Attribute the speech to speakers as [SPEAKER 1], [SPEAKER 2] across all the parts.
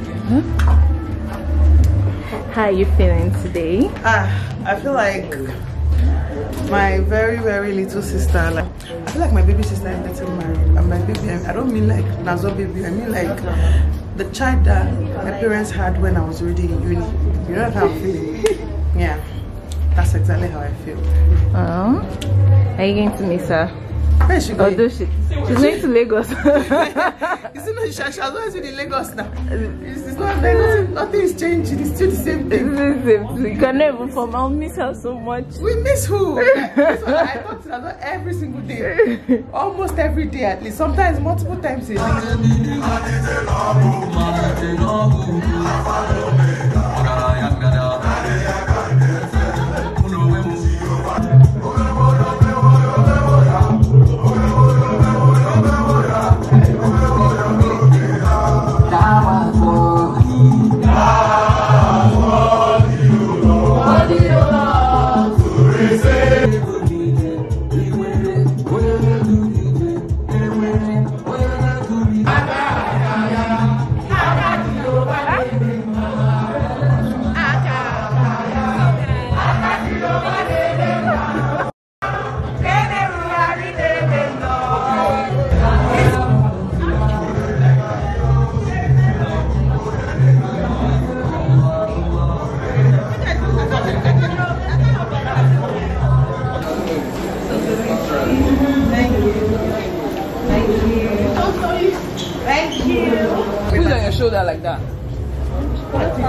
[SPEAKER 1] Huh? How are you feeling today? Ah, I feel like my very very little sister like i feel like my baby sister is getting married and my baby i don't mean like nazo baby i mean like the child that my parents had when i was already in uni you know how i'm feeling yeah that's exactly how i feel oh are you going to miss her where oh, is she going? Odoshi. She's going to Lagos. Isn't it? She, she has always been in Lagos now. It's, it's not Lagos. Nothing is changed. It's still the same thing. It's the same thing. You can never come. I'll miss her so much. We miss who? this one, I talk to her every single day. Almost every day at least. Sometimes multiple times a day.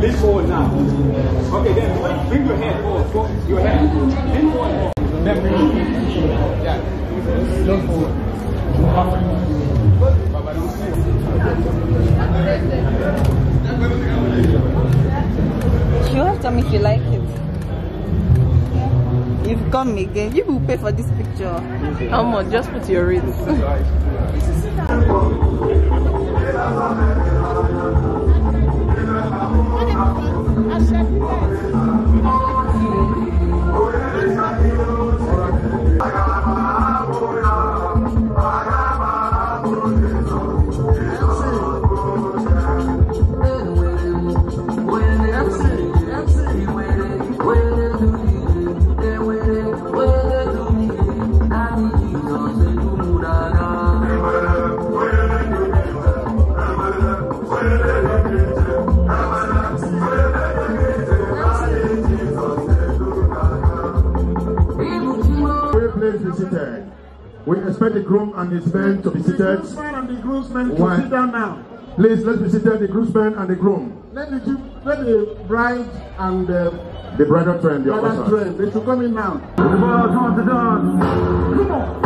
[SPEAKER 1] Lean forward now. Okay, then bring your hand forward. forward. Your hand. Lean forward. Then bring your hand. Yeah. Lean forward. You have to tell me if you like it. You've come again. You will pay for this picture. How much? Just put your rings. groomsmen to be seated. The groomsmen and the groomsmen to sit down now. Please, let's be seated, the groomsmen and the groom. Let the, let the bride and the... The bride the Bride and they should come in now. Come on.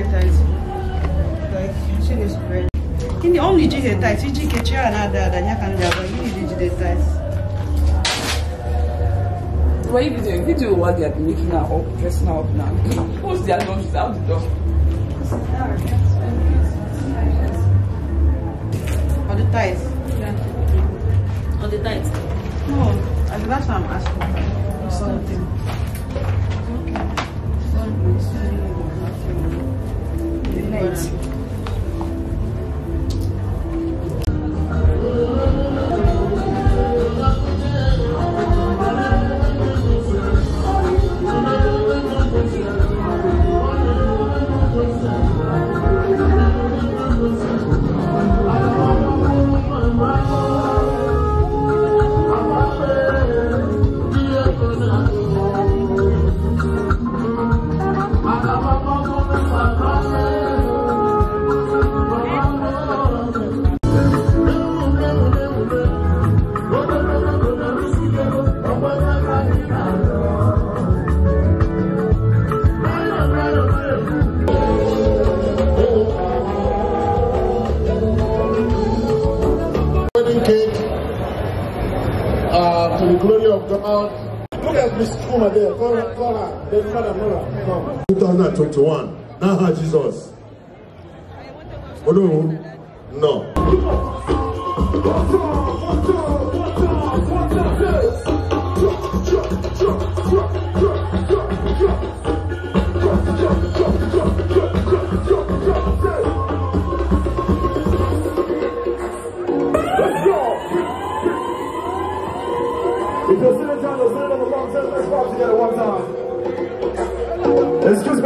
[SPEAKER 1] very. In the only jig the you jig a chair and other than you can do, you need to do the tight. What are you doing? You do what they are making up, dressing up now. Who's the adult? She's out the door. On the tights? Yeah. On the tights? No, that's what I'm asking. Something. 在一起。to one. Now, Jesus.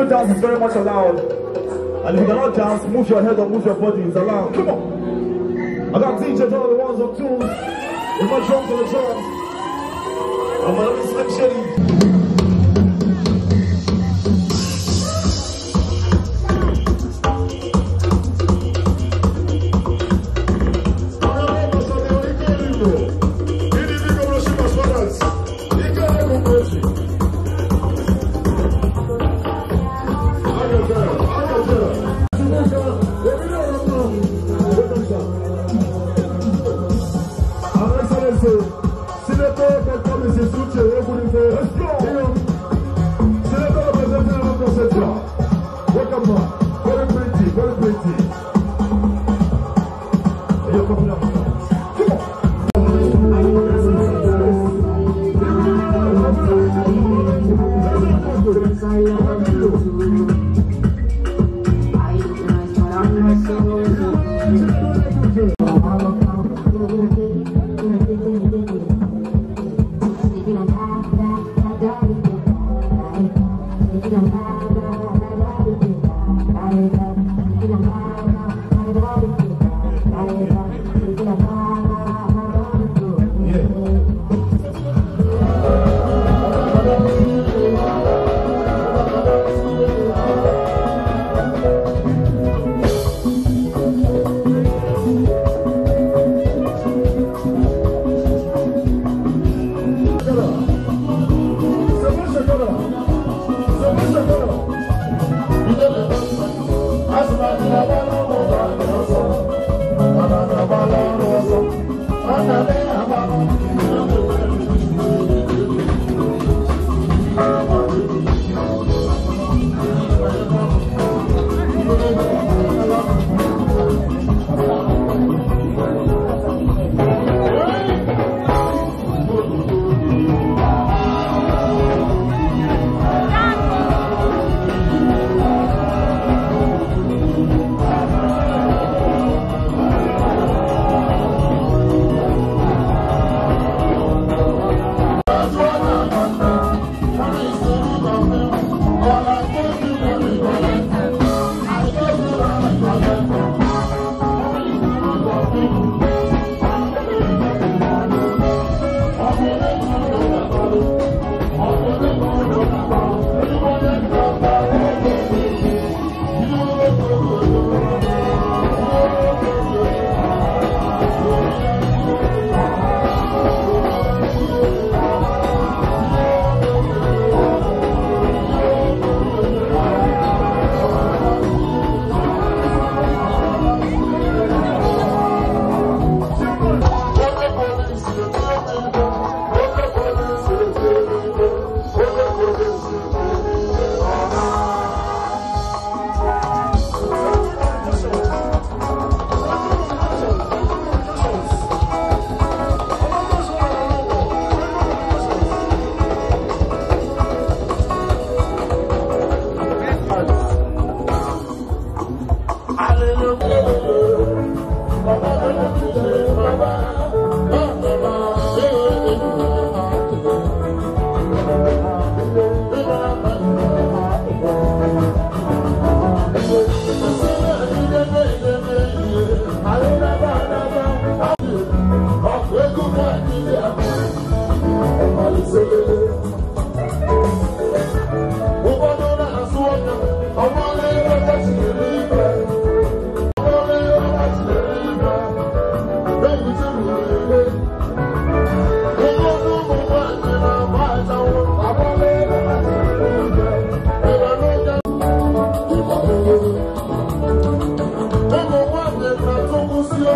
[SPEAKER 1] dance is very much allowed. And if you cannot dance, move your head or move your body. It's allowed. Come on. I got teachers all the ones on tools. in my drums for the drums. I'm gonna be slick shitty.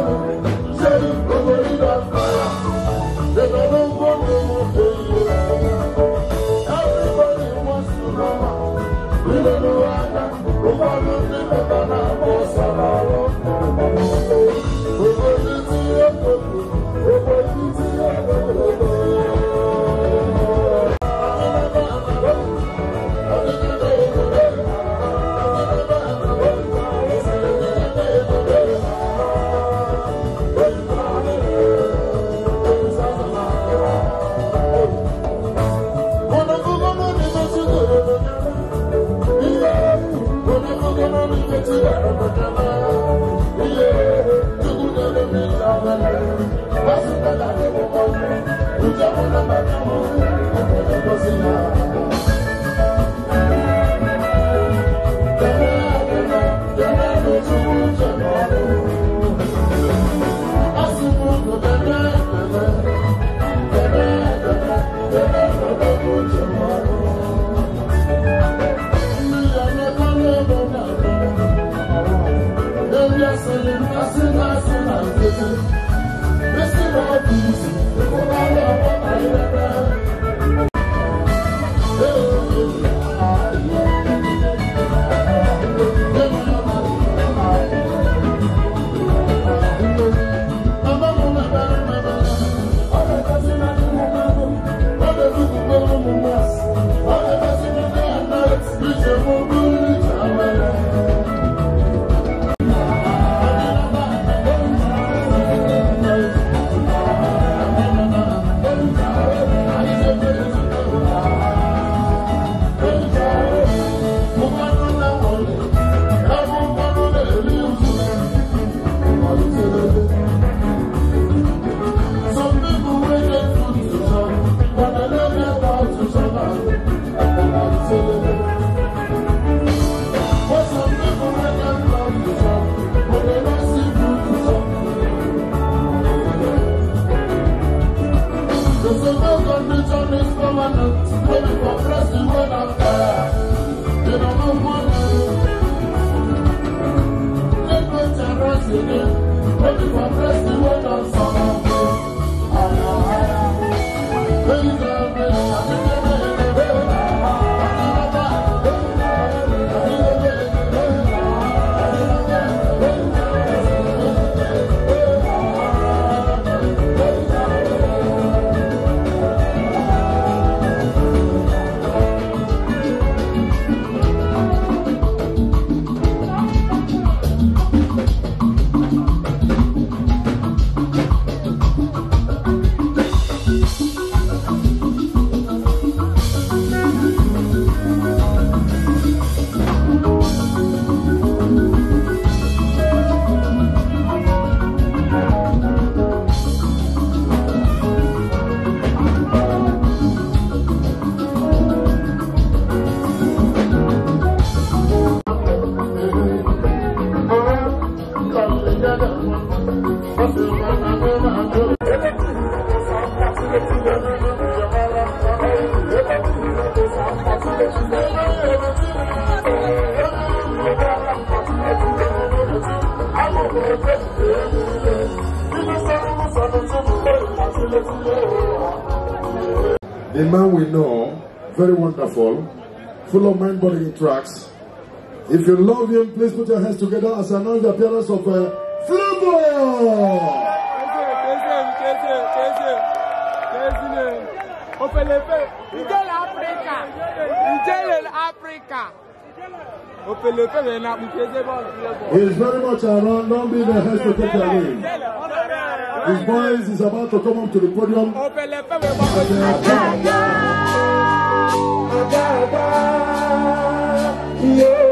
[SPEAKER 1] Oh, Thank you. a man we know, very wonderful, full of mind-boggling tracks. If you love him, please put your hands together as I announce the appearance of uh, Flambo. Opelepe, Ijele Africa, Ijele Africa. He's very much around. Don't be the head to take away. His voice is about to come up to the podium. Yeah.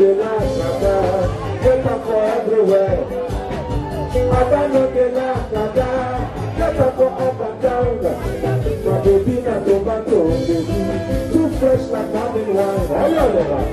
[SPEAKER 1] no dey for everywhere. Papa no dey laugh, Papa. for up and down. My baby na tomato, baby. Too fresh like having wine. Oh, yeah, yeah. Yeah.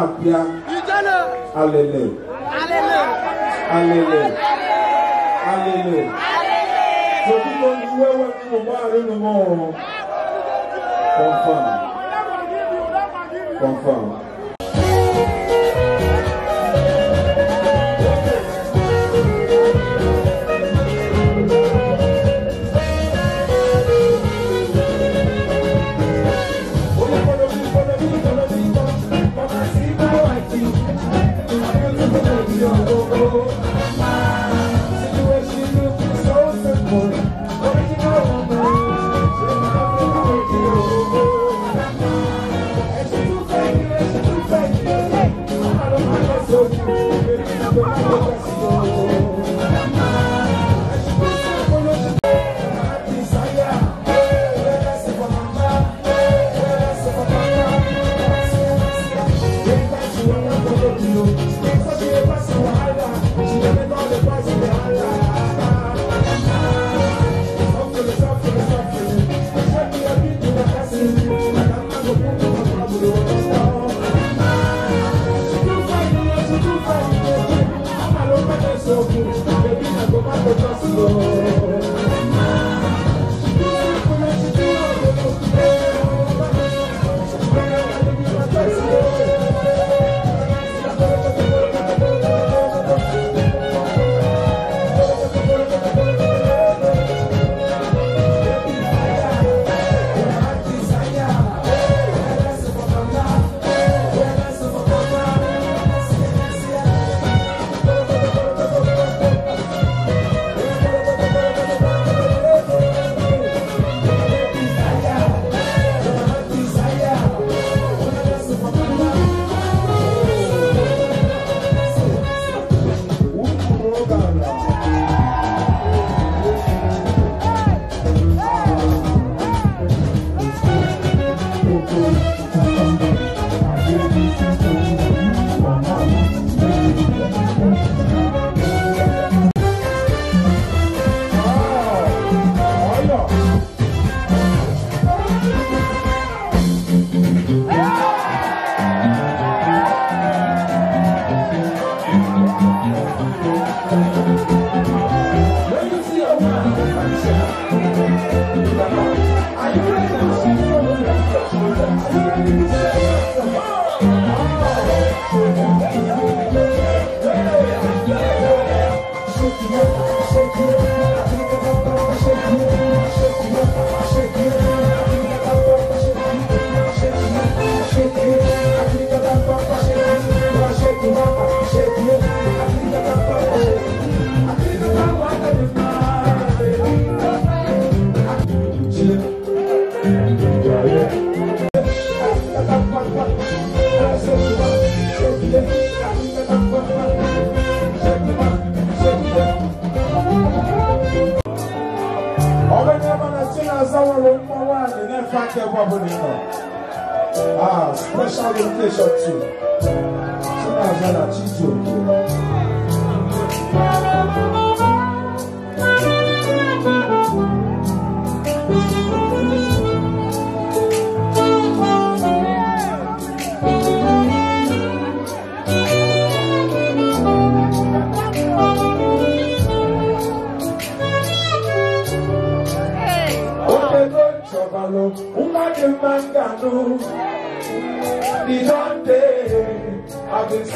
[SPEAKER 1] na-apịa alele alele alele tututu iwe wepụ ụgbọala unu m ọrụ confirm confirm uma pessoa só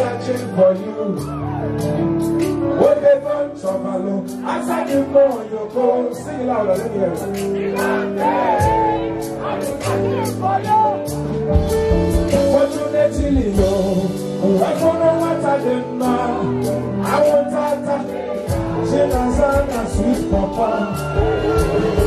[SPEAKER 1] searching for you. When they don't to my look, I said you know you go. Sing it louder, let me hear it. I searching for you. What you need to know? I don't know what I did I want that. She doesn't sweet papa.